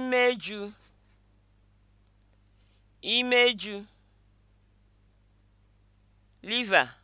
imeju imeju liver